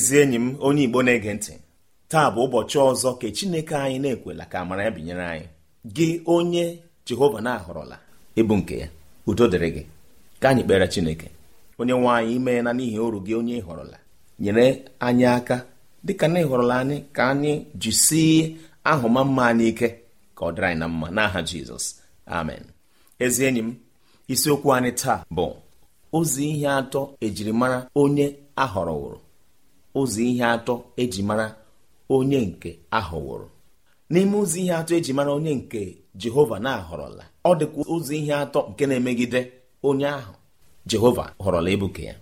ezi enyi m onye igbo na-ege ntị taa bụ ụbọchị ọzọ ka chineke anyị na-ekwela ka amara ya binyere anyị gị onye jehova na-ahọrọla ịbụ nke ya udo dịrị gị ka anyị kpere chineke onye nwe anyị imeela n'ihi oru gị onye ịhọrọla nyere anyị aka dịka na ịhọrọla anyị ka anyị jisie ahụma mma anyị ike ka ọ dịrị anyị na mma n'aha jizọs amen ezi enyi m isiokwu anyị taa bụ ozi ihe atọ ejirimara onye wụrụ ụzọ ihe atọ eji mara onye nke ahọwụrụ n'ime ụzọ ihe atọ eji mara onye nke jehova na-ahọrọla ọ dịkwa ụzọ ihe atọ nke na-emegide onye ahụ jehova họrọla ebuke ya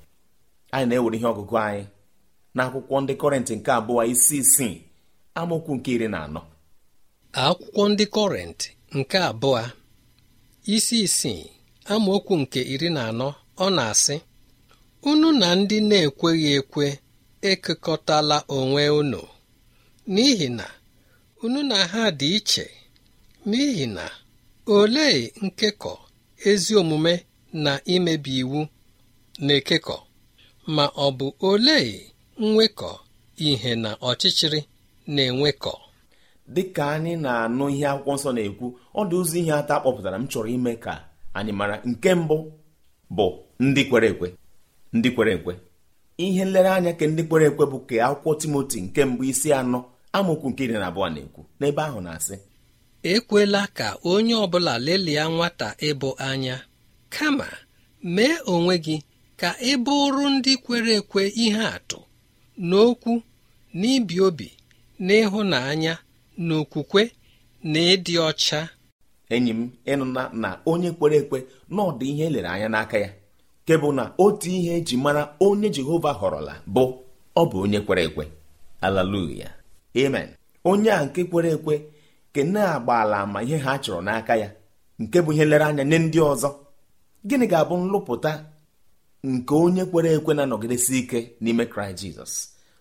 anyị na-ewere ihe ọgụgụ anyị n'akwụkwọ ndị kọrịntị nke abụọ isi isii amaokwu nke iri na anọ akwụkwọ ndị kọrịntị nke abụọ isi isii amaokwu nke iri na anọ ọ na-asị unu na ndị na-ekweghị ekwe ekekọtala onwe unu n'ihi na unu na ha dị iche n'ihi na olee nkekọ ezi omume na imebi iwu na-ekekọ ma ọ bụ olee nwekọ ihe na ọchịchịrị na-enwekọ dị ka anyị na-anụ ihe akwụkwọ nsọ na-ekwu ọ dị ụzọ ihe atọ kpọpụtara m chọrọ ime ka anyị mara nke mbụ bụ ndị kwere ekwe ndị kwere ekwe ihe nlereanya ka ndị kwere ekwe bụ ka akwụkwọ timoti nke mbụ isi anọ amaokwu nke iri na abụọ na-ekwu n'ebe ahụ na-asị ekwela ka onye ọbụla lelia nwata ịbụ anya kama mee onwe gị ka ị bụrụ ndị kwere ekwe ihe atụ n'okwu n'ibi obi n'ịhụnanya n'okwukwe na ịdị ọcha enyi m ịnụna na onye kwere ekwe na ihe elere anya n'aka ya nke bụ na otu ihe eji mara onye Jehova họrọla bụ ọ bụ onye kwere ekwe Haleluya amen onye a nke kwere ekwe ke na ala ama ihe ha chọrọ n'aka ya nke bụ ihe lere anya nye ndị ọzọ gịnị ga-abụ nlụpụta nke onye kwere ekwe na-anọgidesi ike n'ime Kraịst Jizọs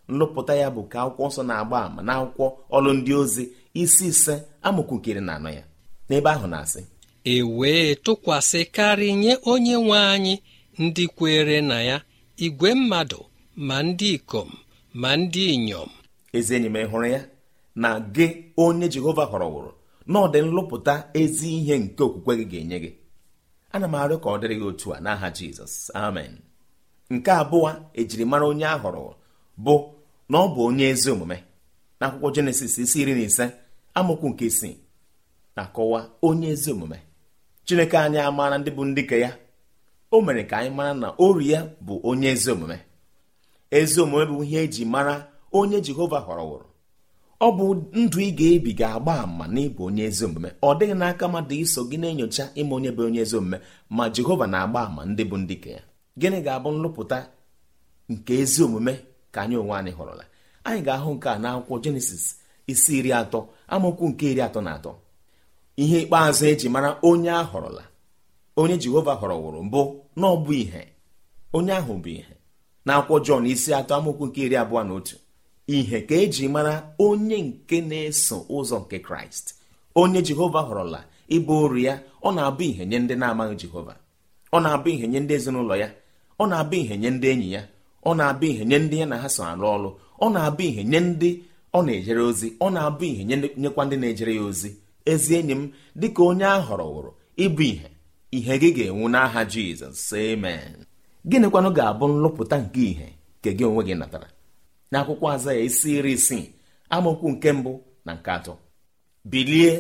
nlụpụta ya bụ ka akwụkwọ nsọ na-agba ama na akwụkwọ ọlụ ndị ozi isi ise amụkwukiri na anọ ya n'ebe ahụ na-asị e wee tụkwasịkarị nye onye nwe anyị ndị kwere na ya igwe mmadụ ma ndị ikom ma ndị inyom ezi enyi m hụrụ ya na gị onye jehova họrọwụrụ na ọ dị nlụpụta ezi ihe nke okwukwe gị ga-enye gị ana m arịọ ka ọ dịrị gị otu a n'aha jizọs amen nke abụọ ejirimara onye a họrọ bụ na ọ bụ onye ezi omume na akwụkwọ jenesis isi iri na ise amụkwu nke isii na-akọwa onye ezi omume chineke anyị amaara ndị bụ ndị ka ya o mere ka anyị mara na ori ya bụ onye ezi omume ezi omume bụ ihe eji mara onye jehova họrọwụrụ ọ bụ ndụ ị ga-ebi ga-agba ama na ịbụ onye ezi omume ọ dịghị n'aka mmadụ iso gị na-enyocha ime onye bụ onye ezi omume ma jehova na-agba ama ndị bụ ndị ka ya gịnị ga-abụ nlụpụta nke ezi omume ka anyị onwe anyị họrọla anyị ga-ahụ nke a n'akwụkwọ jenesis isi iri atọ amaokwu nke iri atọ na atọ ihe ikpeazụ eji mara onye a họrọla onye jehova wụrụ mbụ na ọbụ ihe onye ahụ bụ ihe na akwụkwọ jọn isi atọ amaokwu nke iri abụọ na otu ihe ka eji mara onye nke na-eso ụzọ nke kraịst onye jehova họrọla ịbụ ụrụ ya ọ na-abụ ihe nye ndị na-amaghị jehova ọ na-abụ ihe nye ndị ezinụlọ ya ọ na-abụ ihe nye ndị enyi ya ọ na-abụ ihe nye ndị ya na ha so arụ ọrụ ọ na-abụ ihe nye ndị ọ na-ejere ozi ọ na-abụ ihe nyekwa ndị na-ejere ya ozi ezi enyi m dịka onye a wụrụ ịbụ ihe ihe gị ga-enwu n'aha jizọs amen gịnịkwanụ ga-abụ nlụpụta nke ìhè nke gị onwe gị natara akwụkwọ aza ya isi iri isii amaokwu nke mbụ na nke atọ bilie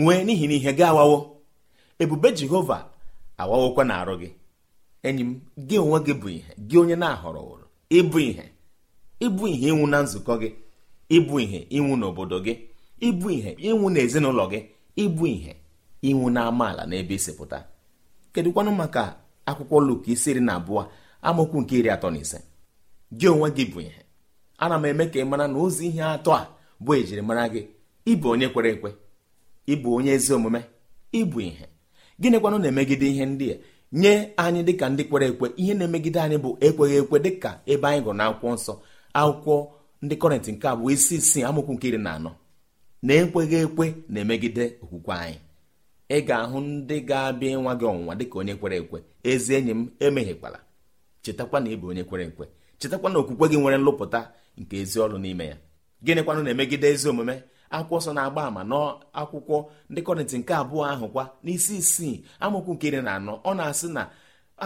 nwee n'ihi na ihe gị awawo ebube jehova awawokwa na-arụ gị enyi m gị onwe gị bụ ihe gị onye na-ahọrọwụrụ ịbụ ihe ịbụ ihe ịnwụ na nzukọ gị ịbụ ihe ịnwụ n'obodo gị ịbụ ihe ịnwụ n'ezinụlọ gị ịbụ ihe ịnwụ na amaala n'ebe isi pụta kedụkwanụ maka akwụkwọ Luk isi iri na abụọ amaokwu nke iri atọ na ise gị onwe gị bụ ihe ana m eme ka ị mara na ozi ihe atọ a bụ ejirimara gị ịbụ onye kwere ekwe ịbụ onye ezi omume ịbụ ihe gịnịkwanụ na-emegide ihe ndị a nye anyị dịka ndị kwere ekwe ihe na-emegide anyị bụ ekweghị ekwe dịka ebe anyị gụrụ akwụkwọ nsọ akwụkwọ ndị kọrịntị nke abụọ isi isii amụkwụ nke iri na anọ na ekweghị ekwe na-emegide okwukwe anyị ị ga-ahụ ndị ga-abịa ịnwa gị ọnwụnwa dịka onye kwere ekwe ezi enyi m emeghịkwala chetakwa na ị bụ onye kwere ekwe chetakwa na okwukwe gị nwere nlụpụta nke ezi ọrụ n'ime ya gịnịkwanụ na-emegide ezi omume akwụkwọ nsọ na-agba àmà n'akwụkwọ ndị kọrịntị nke abụọ ahụ kwa n'isi isii amụkwu nke iri na anọ ọ na-asị na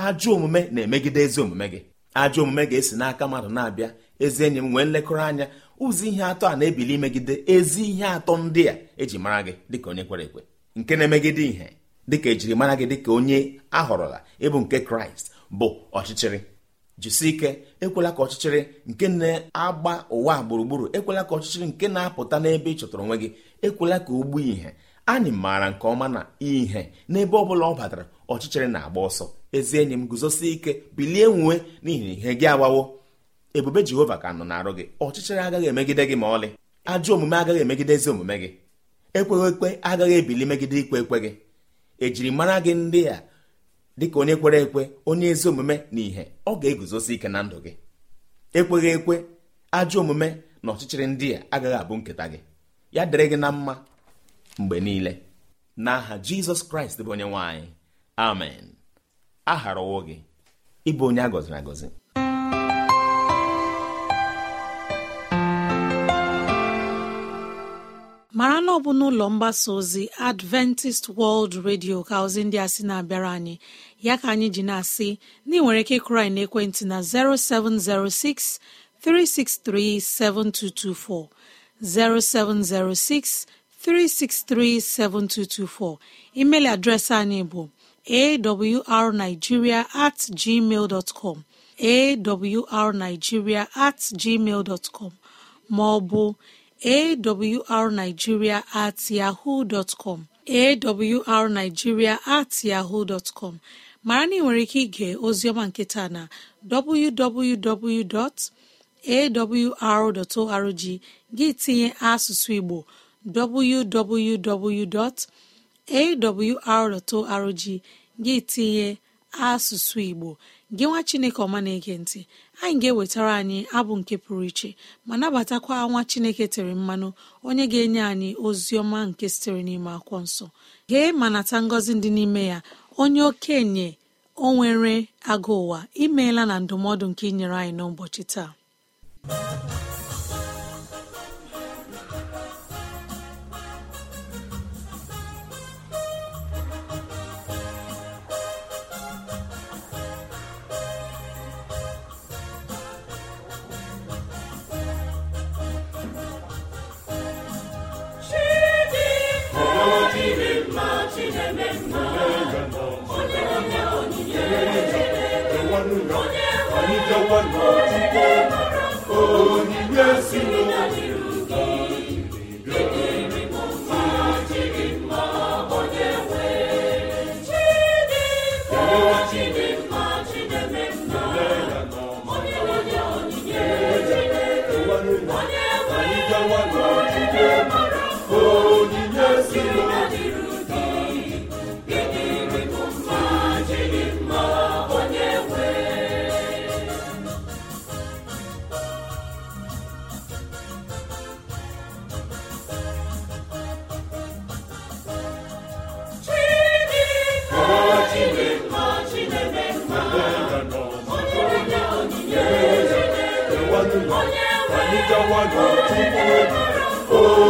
ajọ omume na-emegide ezi omume gị ajọ omume ga-esi n'aka mmadụ na-abịa ezi enyi m nwee nlekọrọ anya ụzọ ihe atọ a na-ebili megide ezi ihe atọ ndị a eji mara gị dịka onye kwere ekwe nke na-emegide ihe dịka ejirimara gị dịka onye ahọrọla ịbụ nke kraịst bụ ọchịchịrị jisi ike ekwela ka ọchịchịrị nke na-agba ụwa gburugburu ekwela ka ọchịchịrị nke na-apụta n'ebe ị chọtara onwe gị ekwela ka o gbuo ihe anyị maara nke ọma na ihe n'ebe ọ bụla ọ batara ọchịchịrị na-agba ọsọ ezi enyi m guzosi ike bilie nwue n'ihi ihe gị agbawo ebube jehova ka nọ na-arụ gị ọchịchịrị agaghị emegide gị ma ọlị ajọ omume agaghị emegide ezi omume gị ekweghị ekwe agaghị ebili megide ikwe ekwe gị ejiri mara gị ndị a dịka onye kwere ekwe onye ezi omume na ìhè ọ ga-eguzosi ike na ndụ gị ekweghị ekwe ajọ omume na ọchịchịrị ndị a agaghị abụ nketa gị ya dịrị gị na mma mgbe niile na n'aha jizọs kraịst bụ onye nwanyị amen a gharawo gị ịbụ onye a gọziri agọzi mara na ọbụ bụ n'ụlọ mgbasa ozi adventist world radio ka ozi ndị a sị na-abịara anyị ya ka anyị ji na-asị na ị nwere ike ịkụrụ na n'ekwentị na 0706 363 7224 0706 363 7224 email adreesị anyị bụ awrnigeria at gmail com awrnigeria at gmail dot com ma ọ bụ awrnigeria at yahoo com. awrnigeria at yahoo dọtkọm mara na ị nwere ike ige ozioma nketa na www.awr.org gị tinye asụsụ Igbo www.awr.org gị tinye asụsụ Igbo gị nwa Chineke ọma na-ege ntị anyị ga-ewetara anyị abụ nke pụrụ iche ma nabatakwa nwa chineke tere mmanụ onye ga-enye anyị ozi ọma nke sitere n'ime akwụkwọ nsọ gee ma nata ngọzi dị n'ime ya onye okenye o nwere agụ ụwa imeela na ndụmọdụ nke inyere anyị n'ụbọchị taa onye anyị gawa n'ọtụtụ egwu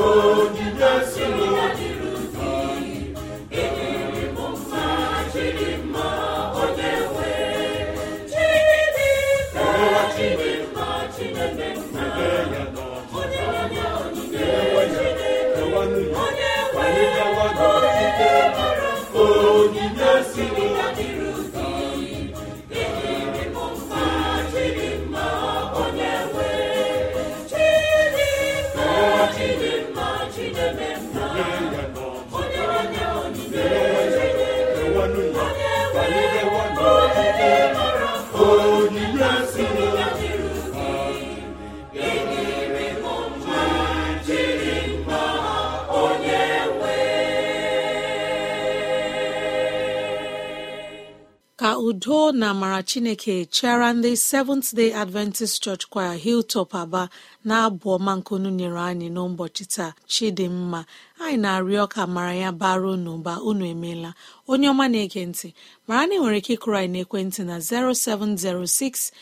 onye udo na amara chineke chịara ndị seventh day adventist church choir hilltop aba na-abụ ọma nkunu nyere anyị n'ụbọchị taa chidimma anyị na-arịọ ka mara ya baruo n'ụba unu emeela onye ọma na-ege ntị mara na nwere ike ịkụrụ anyị na 0706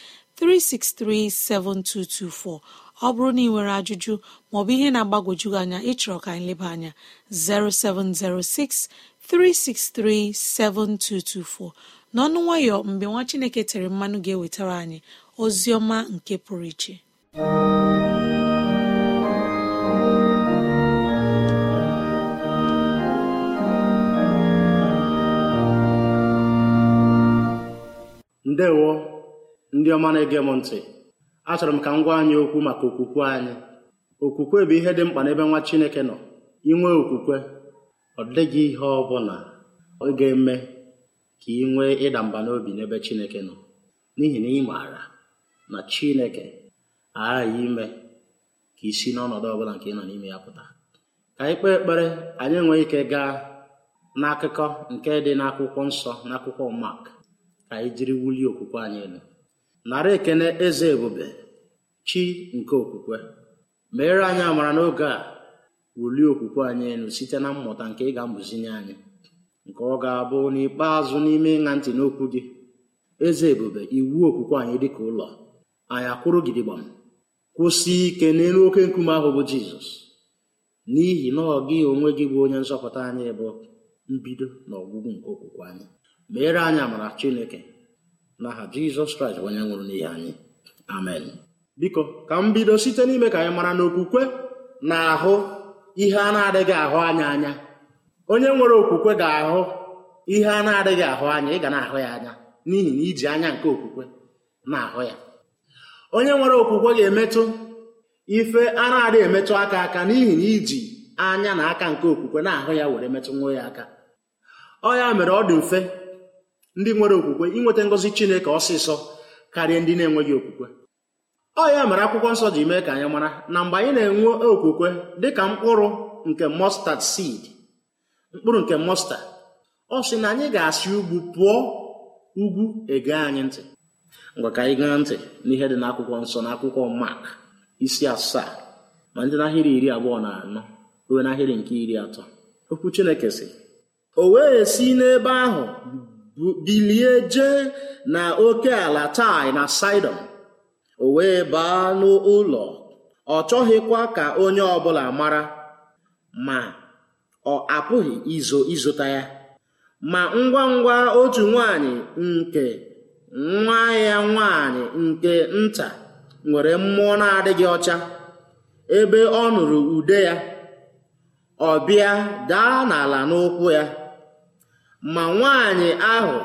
ọ bụrụ na ị nwere ajụjụ maọbụ ihe na-agbagwoju anya ịchọrọ ka anyị leba anya 0706 n'ọnụ nwayọ mgbe nwa chineke tere mmanụ ga-ewetara anyị ozi ọma nke pụrụ iche ndewo ndị ọma na-ege m ntị achọrọ m ka m gwa anyị okwu maka okwukwe anyị okwukwe bụ ihe dị mkpa n'ebe nwa chineke nọ inwe okwukwe ọ dịghị ihe ọ bụla ọ ga-eme ka ị nwee ịda mba n'obi n'ebe Chineke nọ n'ihi na ị maara na Chineke aghaghị ime ka i si n'ọnọdụ ọbụla nke ị nọ n'ime ya pụta ka anyị kpee ekpere anyị enweghị ike gaa n'akụkọ nke dị n'akwụkwọ nsọ n'akwụkwọ Mak ka anyị jiri wulie okwukwe anyị elu nara ekene eze ebube chi nke okwukwe meere anyị amara n'oge a wulie okwukwe anyị elu site na mmụta nke ị ga-amụzinye anyị nke ọ ga-abụ n'ikpeazụ n'ime ịṅa ntị n'okwu gị eze ebube iwu okwukwe anyị dịka ụlọ anyị akwụrụ gidigbam kwụsị ike n'elu oke nkume ahụ bụ jizọs n'ihi na ọ gị onwe gị bụ onye nzọpụta anyị bụ mbido na ọgwụgwụ nke okwukwe anyị meere anyị amara chineke na aha jizọs kraịst onye nwụrụ n'ihi anyị amen biko ka m bido site n'ime ka anyị mara na okwukwe na ahụ ihe a na-adịghị ahụ anya anya onye nwere okwukwe ga-ahụ ihe a na-adịghị ahụ anya ị ga na-ahụ ya anya n'ihi na iji anya nke okwukwe na-ahụ ya onye nwere okwukwe ga-emetụ ife a na-adịghị emetụ aka aka n'ihi na iji anya na aka nke okwukwe na-ahụ ya were metụ nwa ya aka ọ ya mere ọ dị mfe ndị nwere okwukwe inweta ngozi chineke ọsịsọ karịa ndị na-enweghị okwukwe ọ ya mere akwụkwọ nsọ ji mee ka anyị mara na mgbe anyị na-enwe okwukwe dị ka mkpụrụ nke mustard seed mkpụrụ nke mọsta ọ sị na anyị ga-asị ugwu pụọ ugwu ege anyị ntị ngwa ka anyị gaa ntị n'ihe dị n'akwụkwọ nsọ n'akwụkwọ mak isi asaa ma ndị n'ahịrị iri abụọ na anọ ruo n'ahịrị nke iri atọ okwu chineke sị o wee si n'ebe ahụ bilie jee na oke ala tai na saidon o wee baa n'ụlọ ọ chọghịkwa ka onye ọbụla mara ma ọ apụghị izo ịzụta ya ma ngwa ngwa otu nwanyị nke nwa ya nwanyị nke nta nwere mmụọ na-adịghị ọcha ebe ọ nụrụ ude ya ọ bịa daa n'ala n'ụkwụ ya ma nwanyị ahụ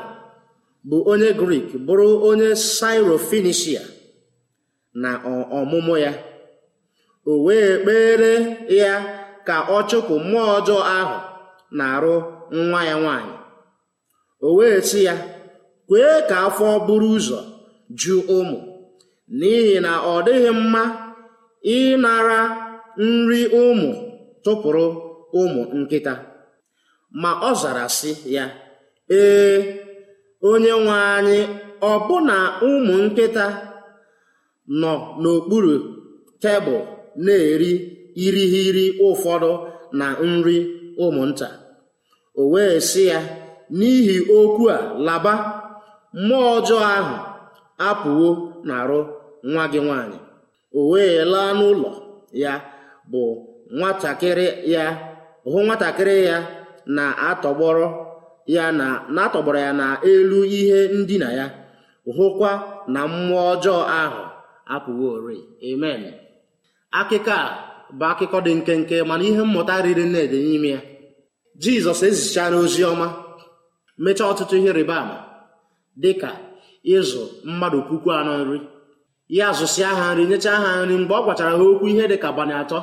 bụ onye grik bụrụ onye sairofenishia na ọmụmụ ya o wee kpere ya ka ọ chụpụ mmụọ ọjọọ ahụ na-arụ nwa ya nwanyị o wee sị ya kwee ka afọ buru ụzọ ju ụmụ n'ihi na ọ dịghị mma ịnara nri ụmụ tụpụrụ ụmụ nkịta ma ọ zara sị ya ee onye nwe anyị ọbụna ụmụ nkịta nọ n'okpuru tebụl na-eri irighiri ụfọdụ na nri ụmụnta o wee sị ya n'ihi okwu a laba mmụọ ọjọọ ahụ apụwo n'arụ nwa gị nwanyị o wee laa n'ụlọ ya bụ nwatakịrị ya hụ nwatakịrị ya na-atọgbọrọ ya na na-atọgbọrọ ya n'elu ihe ndina ya hụkwa na mmụọ ọjọọ ahụ apụworị amen akịka a bụ akụkọ dị nkenke mana ihe mmụta riri nne dị n'ime ya jizọs ezichala ozi ọma mechaa ọtụtụ ihe rịba ama dị ka ịzụ mmadụ puku anọ nri ya zụsịa ha nri nyechaa ha nri mgbe ọ gwachara ha okwu ihe dị ka abalị atọ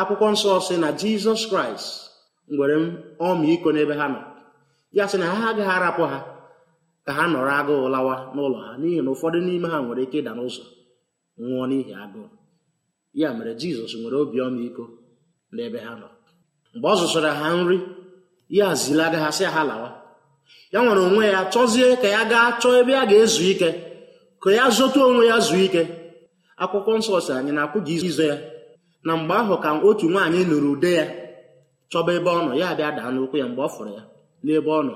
akwụkwọ nsọ sị na jizọs kraịst nwere ọmịiko n'ebe ha nọ ya sị na ha agaghị arapụ ha ka ha nọrọ agụụ lawa n'ụlọ ha n'ihi na ụfọdụ n'ime ha nwere ike ịda n'ụzọ nwụọ n'ihi agụụ ya mere jizọs nwere obi iko n'ebe ha nọ mgbe ọ zụsara ha nri ya zilaga ha sị ha lawa ya nwere onwe ya chọzie ka ya gaa chọọ ebe a ga-ezu ike ka ya zụta onwe ya zuo ike akwụkwọ nsọ si anyị na-akwụghị izo ya na mgbe ahụ ka otu nwaanyị nụrụ ude ya chọba ebe ọ nọ ya bịa daa n'ụkwụ ya mgbe ọ fụrụ ya n'ebe ọ nọ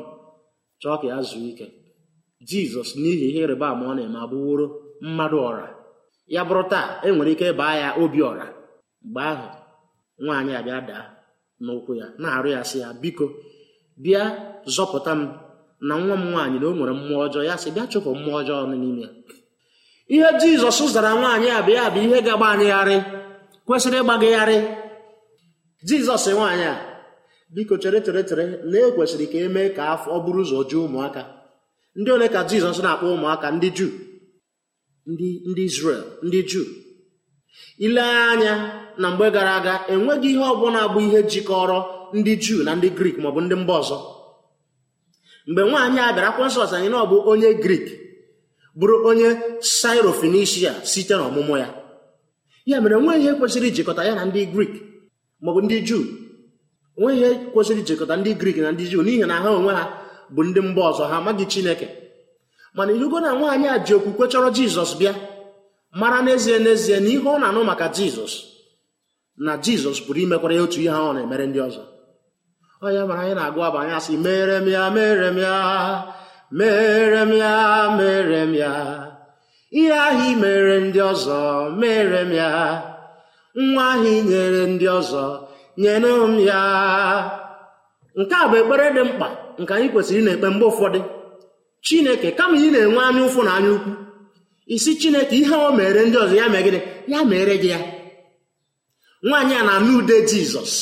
chọọ ka ya zuo ike jizọs n'ihi ihe ịrịba ama ọ na-eme abụworo mmadụ ọra ya bụrụ taa e nwere ike baa ya obiọra mgbe ahụ nwaanyị abịa daa n'ụkwụ ya na-arụ ya sị ya biko bịa zọpụta m na nwa m nwaanyị na o nwere mmụọ ọjọọ ya sị bịa chụpụ mmụọ ọjọọ n'ime ya ihe jizọs zara nwaanyị a bịa bụ ihe ga-agba kwesịrị ịgbagagharị jizọs nwaanyị a biko chere chere chere na e kwesịrị ka e mee ka afọ ọ bụrụ ụzọ jụọ ụmụaka ndị ole ka jizọs na-akpọ ụmụaka ndị juu ndị ndị Izrel ndị Juu ilee anya na mgbe gara aga enweghị ihe ọbụla bụ ihe jikọrọ ndị Juu na ndị Grik maọbụ ndị mba ọzọ mgbe nwaanyị a bịara akwensọs anyị na ọ bụ onye Grik bụrụ onye sairo site n'ọmụmụ ya ya mere nweghị ihe kwesịrị ijikọta ya na ndị Grik maọbụ ndị Juu nweghị ihe kwesịrị ijikọta ndị Grik na ndị Juu n'ihi na ha onwe ha bụ ndị mba ọzọ ha amaghị Chineke mana ilugo na nwaanyị a ji okwukwe chọrọ jizọs bịa mara n'ezie n'ezie na ihe ọ na-anụ maka jizọs na jizọs pụrụ imekwara ya otu ihe ahụ na-emere ndị ọzọ onye mara anyị na-agụ abụ anya sị, mere m ya mere m ya mere m ya mere m ya ihe ahụ i mere ndị ọzọ mere m ya nwa ahụ i nyere ndị ọzọ nyere m ya nke a bụ ekpere dị mkpa nke anyị kwesịrị ị na-ekpe mgbe ụfọdụ chineke kama ị na-enwe anya ụfụ na anya ukwu isi chineke ihe o mere ndị ọzọ ya mee gịnị ya mere gị ya nwaanyị a na-anụ ude jizọs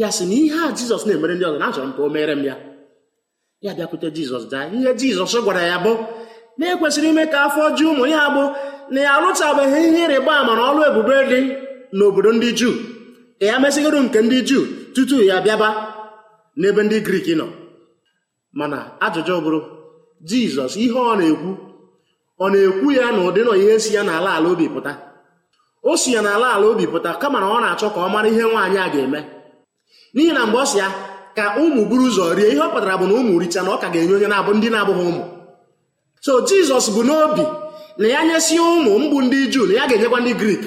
ya sị na ihe a jizọs na-emere ndị ọzọ na achọrọ m ka o mere m ya ya bịakwute jizọs daa ihe jizọs gwara ya bụ na-ekwesịrị ime ka afọ ju ụmụ ya bụ na ya arụchabeghị ihe ịrịba ama na ọrụ ebube dị n'obodo ndị juu ka ya mesịgoro nke ndị juu tutu ya bịaba n'ebe ndị griik nọ mana ajụjụ bụrụ jizọs ihe ọ na-ekwu ọ na-ekwu ya na ụdị nọ ihe si ya n'ala ala obi pụta o si ya n'ala ala obi pụta kama na ọ na-achọ ka ọ mara ihe nwaanyị a ga-eme n'ihi na mgbe ọ si ya ka ụmụ buru ụzọ rie ihe ọ pụtara bụ na ụmụ richa na ọ ka ga-enye onye na-abụ ndị na-abụghị ụmụ so jizọs bụ n'obi na ya nyesi ụmụ mgbu ndị juu na ya ga-enyekwa ndị grik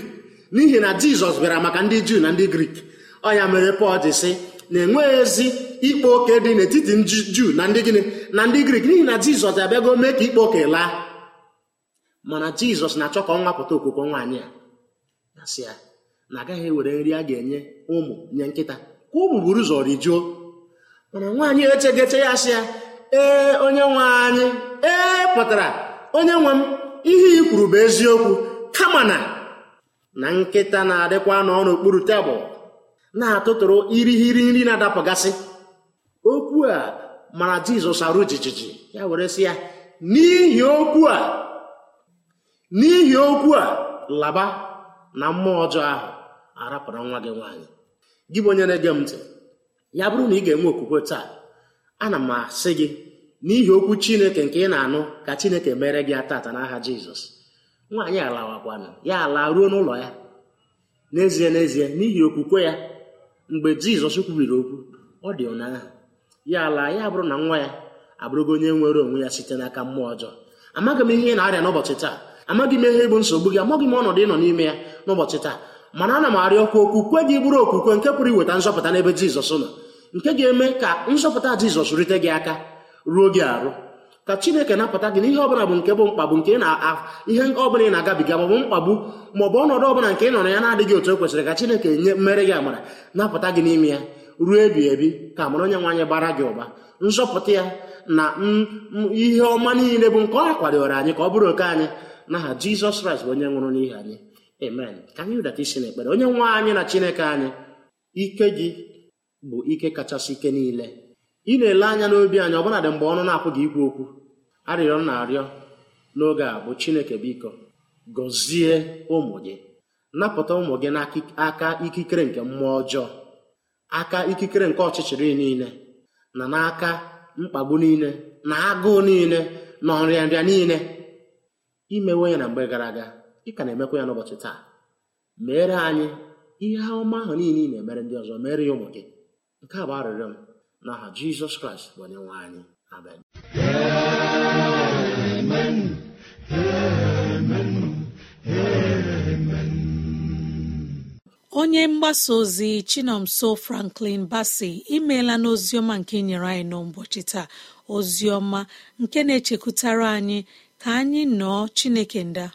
n'ihi na jizọs bịara maka ndị juu na ndị grik ọ ya mere pọl dị sị na-enweghị ezi ikpe oke dị n'etiti juu na ndị gịnị na ndị grik n'ihi na jizọs abịago mee ka ikpe oke laa mana jizọs na-achọ ka ọ nwapụta okwukwe nwaanyị a na-asị ya na agaghị ewere nri a ga-enye ụmụ nye nkịta ka ụmụ buru ụzọ rijuo mana nwaanyị echegeche ya sị ya ee onye nwe anyị ee pụtara onye nwe m ihe i kwuru bụ eziokwu kama na na nkịta na-adịkwa n'ọnụ okpuru tebụl na-atụtụrụ irighiri nri na-adapụgasị okwu a mara jizọs arụ jijiji ya were sị ya n'ihi okwu a n'ihi okwu a laba na mmụọ ọjọọ ahụ arapụrụ nwa gị nwaanyị gị bụ onye na-ege m ntị ya bụrụ na ị ga-enwe okwukwe taa ana m asị gị n'ihi okwu chineke nke ị na-anụ ka chineke mere gị atata n'aha jizọs nwaanyị alawakwana ya ala ruo n'ụlọ ya n'ezie n'ezie n'ihi okwukwe ya mgbe jizọs kwubiri okwu ọ dị ụnyaahụ ya ala ya abụrụ na nwa ya abụrụgo onye nwere onwe ya site n'aka mmụọ ọjọọ amaghị m ihe ị na-arịa n'ụbọchị taa amaghị m ihe bụ nsogbu gị amaghị m ọnọdụ ịnọ n'ime ya n'ụbọchị taa mana ana m arịọkwa kwe gị bụrụ okwukwe nke pụrụ iweta nzọpụta n'ebe jizọs nọ nke ga-eme ka nzọpụta jizọs rite gị aka ruo gị arụ ka chineke napụta gị n'ihe ọbụla bụ nke bụ mkpagbu nke ihe ọbụla ị na-agabiga maọbụ mkpagbu maọbụ ọnọdụ ọbụla nke ị nọrọ ya na-adịghị otu o kwesịrị ka chineke nye mmere gị amara napụta gị n'ime ya ruo ebi ebi ka amara onye nwe anyị bara gị ụba nzọpụta ya na ihe ọma niile bụ nke ọ akwadoro anyị ka ọ bụrụ oke anyị n'aha jizọs kraịst bụ onye nwụrụ n'ihi anyị amen ka anyị rịdata isi n'ekpere onye nwa anyị na chineke anyị ike gị bụ ike kachasị ike niile ị na-ele anya n'obi anyị ọbụnadị mgbe ọnụ na-apụ gị ikwu okwu arịrịọ na-arịọ n'oge a bụ chineke biko gọzie ụmụ gị napụta ụmụ gị n'aka ikikere nke mmụọ ọjọọ aka ikikere nke ọchịchịrị niile na n'aka mkpagbu niile na agụụ niile na ọrịanrịa niile imewe ya na mgbe gara aga ị ka na-emekwa ya n'ụbọchị taa mere anyị ihe ọma ahụ niile ị na-emere ndị ọzọ mere ya ụmụ gị nke a bụ arịrịọ m n'aha jizọs kraịst bụ onye nwe anyị amen onye mgbasa ozi chinomso franklin basi imeela n'oziọma nke nyere anyị n'ụbọchị taa oziọma nke na-echekwutara anyị ka anyị nọọ chineke nda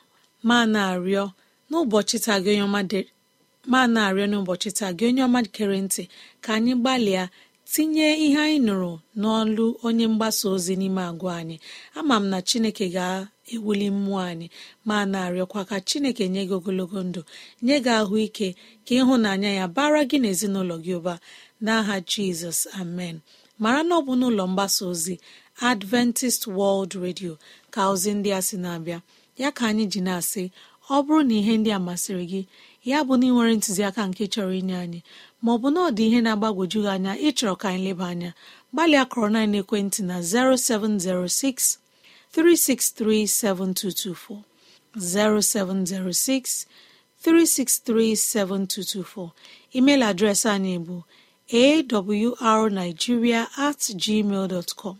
ma na-arịọ n'ụbọchị taa gị onye ọma kere ntị ka anyị gbalịa tinye ihe anyị nụrụ n'ọlụ onye mgbasa ozi n'ime agwa anyị ama m na chineke ga-ewuli mmụọ anyị ma na-arịọkwa ka chineke nye gị ogologo ndụ nye gị ahụike ka ịhụnanya ya bara gị n'ezinụlọ gị ụba n'aha jizọs amen mara na ọ bụ n'ụlọ mgbasa ozi adventist world radio ka ozi ndị a sị na-abịa ya ka anyị ji na-asị ọ bụrụ na ihe ndị a masịrị gị ya bụ na ị ntụziaka nke chọrọ inye anyị maọbụ na ọ dị ihe na-agbagwoju gị anya ịchọrọ ka anyị leba anya gbalịa kọrọ na ekwentị na 0706 363 7224 0706 363 7224 email adreesị anyị bụ awrnigeria at gmail dot com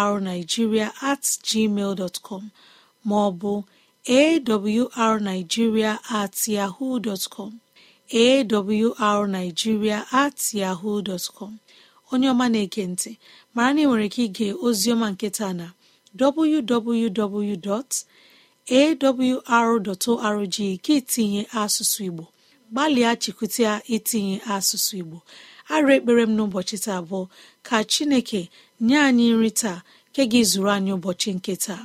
awrnigeria at gmail dot com maọbụ awrnigeria at yahoo dot com awrnigeria at yahoo com onye ọma na ekentị ntị mara na ị nwere ike ige ozioma nketa na www.awr.org ka itinye asụsụ Igbo gbalịa chịkụta itinye asụsụ Igbo arụ ekpere m n'ụbọchị taa abụọ ka Chineke nye anyị nri taa nke gị zuru anyị ụbọchị nke taa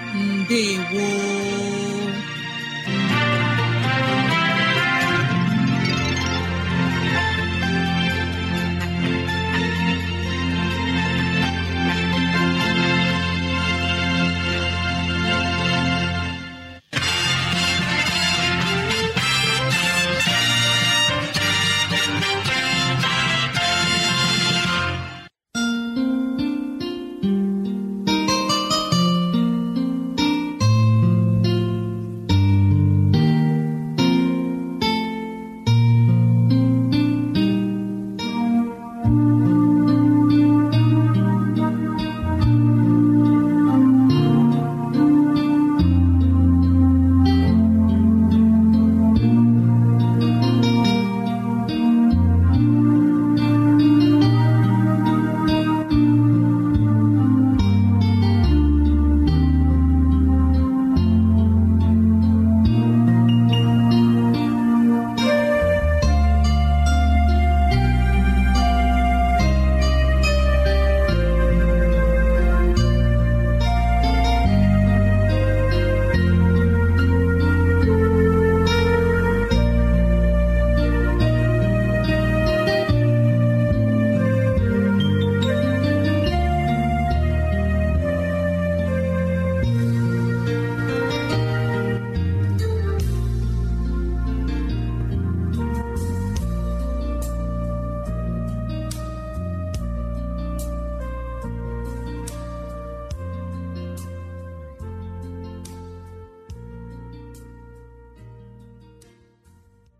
Ndewo